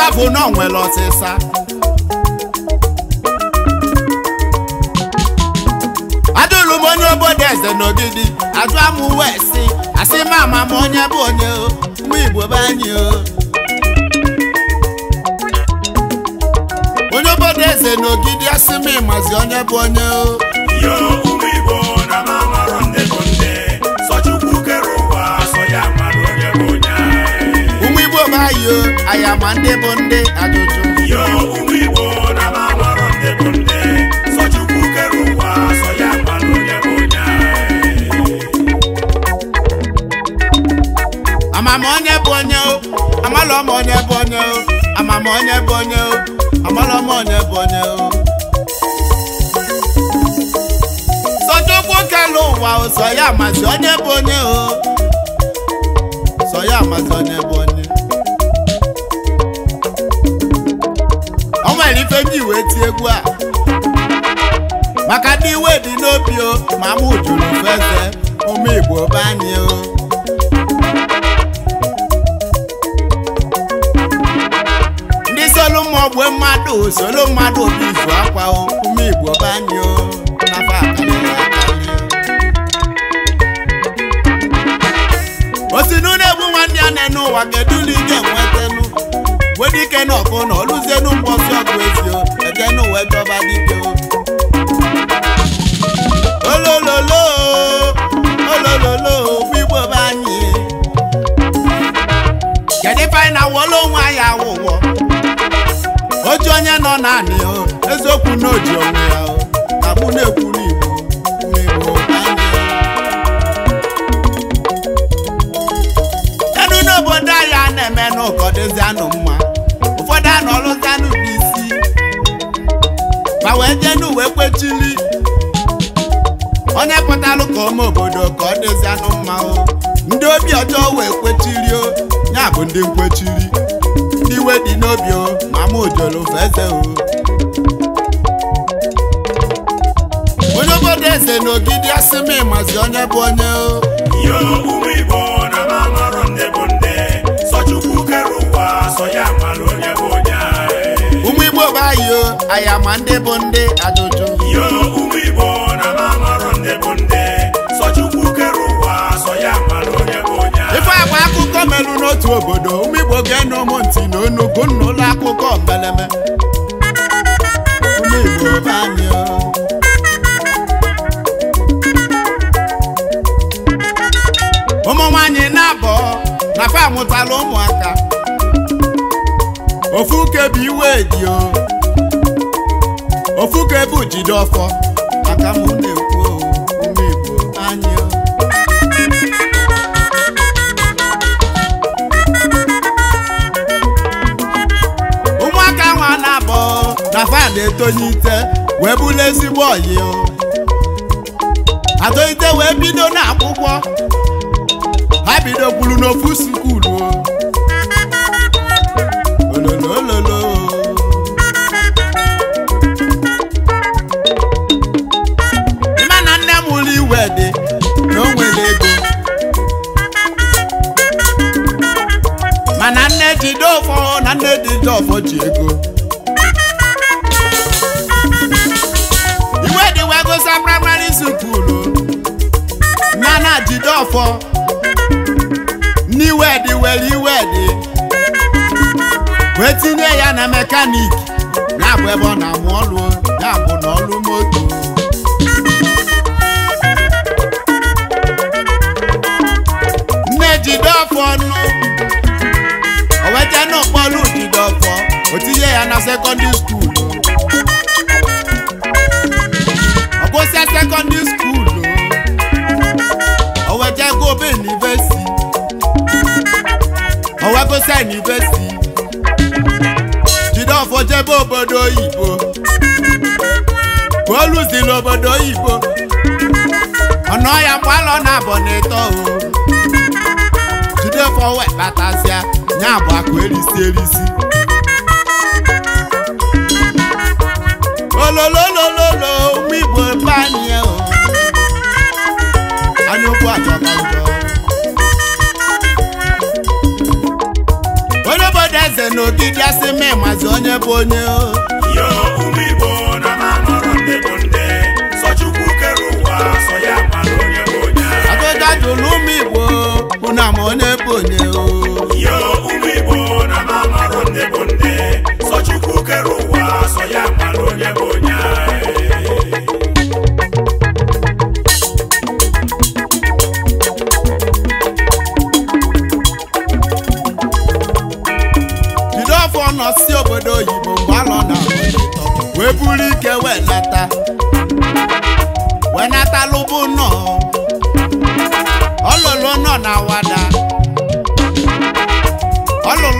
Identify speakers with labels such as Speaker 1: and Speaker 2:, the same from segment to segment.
Speaker 1: ife bụ na onwere ọsịsa adụrụ m onye obodo eze n'ogidi ajụa m uwe si asị ma ama m onye bụ onye mụ igbo be anyị onye obodo eze n'ogidi asị m ịmazi onye bụ onye o ma ndị bụ ndị ajụjụ yo bụ ndị sọ Chukwu kere ụwa sọ ya onye bụ onye onye bụ onye o amala ọma onye bụ onye o amama onye bụ onye onye bụ onye o ụwa bụ onye o sọ onye bụ ife m ji wee tie egwu a maka ndị iwe dị n'obi o oh. ma mụ jụrụ feze ụmụ Igbo be o oh. ndị solu mmụọ ogbe mmadụ solu mmadụ obi izu akwa ụmụ oh. Igbo be o nafa na egbu nwanne ya na n'ụwa kedu ụlọ ị ga-enweta wedike na ọkụ na oluzienu mkpọsi ọgụ ezio ekene uwe jọba dike olololo olololo bụ igbo be anyị kedu ife na-awọla onwe anyị awụwọ oji onye nọ naanị eziokwu na oji onwe onye pụtalụ ka ụmụ obodo ka ọ dịzi anụ mmanwụ ndị obi ọjọọ wee kwechiri o ya bụ ndị nkwechiri ndị iwe dị n'obi o mama ojolo eze o onye obodo eze n'ogidi asị m ịmazi onye bụ onye o yo aya ma ndị bụ ndị ajụjụ yo ụmụ Igbo na na-amarọ ndị bụ ndị sọ Chukwu kere ụwa sọ ya mara onye bụ onye ife agba akụkọ merụ n'otu obodo ụmụ Igbo ga-enụ ụmụ ntị na onugo nna ụlọ akụkọ mbeleme ụmụ Igbo be anyị na-abọ na fa amụtala ụmụaka ofu kebi iwe dio jide ọfọ aka m na-ekwu na-ekwu anya ụmụaka nwa na-abọ na fan etonye ite wee bụrụ ezigbo oyi atolite wee bido n'akwụkwọ ha bidokwuru n'ofu skuulu ololo na nne jide ọfọ na nne dị jide ọfọ ji ego iwe dịwagosa praịmarị sukulu na na jide ọfọ n'iwe dị were iwe dị wee tinye ya na mekaniki na-abụ ebe ọ na-amụ ọlụ ya bụ na ọlụ ebe obodo oyibo ka n'obodo oyibo ọnụ ọya mgbalọ na abọ na o jide fọwe batazia nya abụ akụ erisi erisi olololololo ụmụ igbo ebe anyị e anyị okwu achọta njọ na asị memazi onye bụ onye o.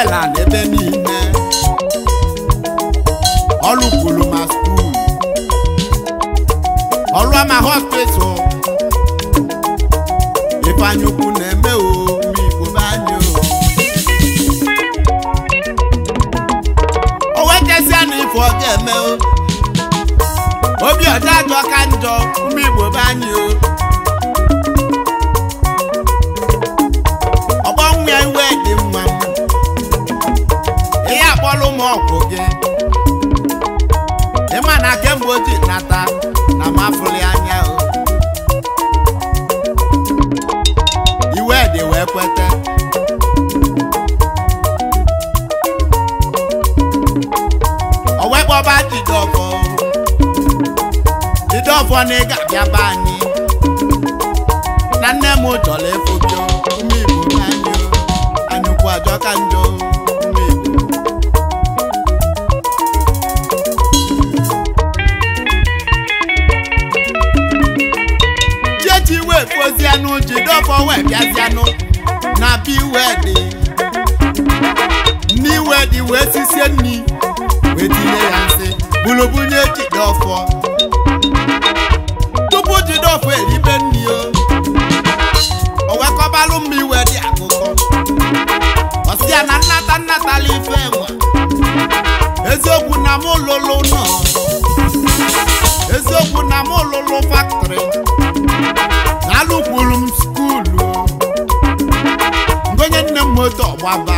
Speaker 1: Noela n'ebe niile kwuru ma skuul ọlụama hospital ifeanyị ukwu na-eme o igbo be anyị o wetesia na ife ọ eme o obi ọjọọ ajọ ka njọ ume igbo be anyị o ọgbọ nwa iwe dị m ọgwụ gị ịma na kemgbe oji nata na mafụli anya iwe dị wee kweta owekpọba jidọfọ jidọfọ na ị ga-abịa be anyị na nne m chọrọ efo gị ume igbo ka njọ anyụkwu ajọ ka njọ wepuozianụ jidobọ wee bịazianụ na be iwe dị nne iwe wee sisie nri wee ya eribe akụkọ na nnata nnatala ife enwe eziokwu na m lụlụ nọ eziokwu na factory. nụkwuru m skuulu onye nne m moto ọgbaba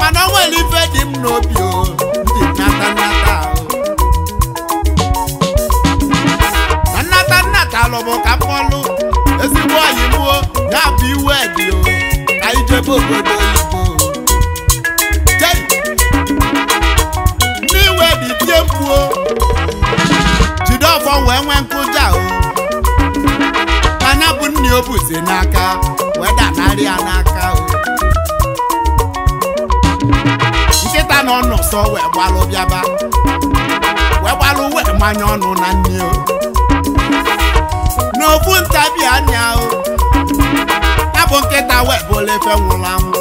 Speaker 1: mana nwere ife dị m n'obi ndị nnata nnata na nnata nnata lụbụ ka mkpọlụ ezigbo oyi mụo ya bụ iwe dị ka ije ijebe obodo ife n'aka wee nri ya n'aka nkịta nọ n'ụsọ wee gbalụ bịaba wee gbalụ wee manye ọnụ na nne o n'ofu ntabi anya o ya bụ nkịta wee bụla efe nwụrụ anwụ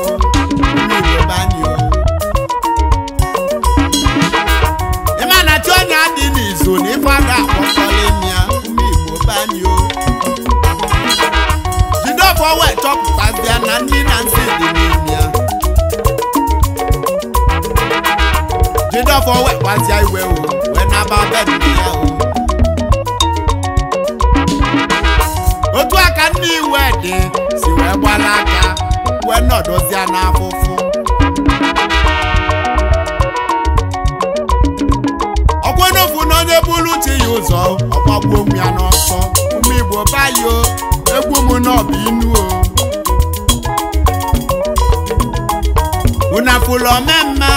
Speaker 1: ịma na chi onye adị n'izu na ya igbo banyo afọ ịchọpụta chọpụtazịa na nri na nsị dị n'ime ya jidọfọ iwe o wee naba bedị ya o otu aka nne iwe dị si wee gbara aka wee nọdụzịa n'afụfụ ọkwenofu na onye buru uche ya ụzọ ọgbagbuo onwe ya n'ọsọ ụmụ igbo bayo bụ inu o unu afụlụ omemma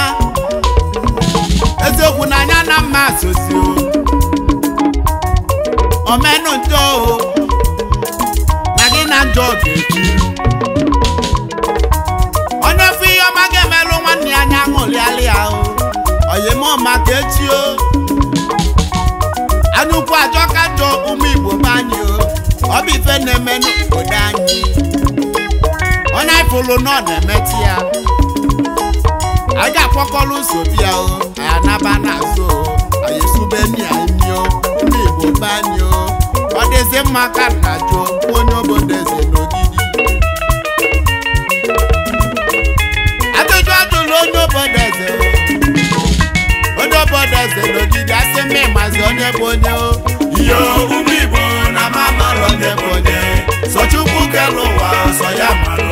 Speaker 1: eziokwu na mma sosi omenu njọ o na gị na njọ ga onye fụ ihe ọma ga-emelụ nwanne ya anya ṅụrịalị ya o oyimọma ka echi anụkwu ajọ ka ụmụ Igbo o ọ bụrụ na ọ na-emetụ ya a ga-akpọkọrọ ụzọ bịa o anaba n'azụ anyị ọ ọ dịzi mma ka nna jụ onye obodo ọ n'ogidi ajụjụ ajụrụ onye onye obodo eze n'ogidi ma onye bụ onye ihe ụmụ Igbo na mama onye so Chukwu ya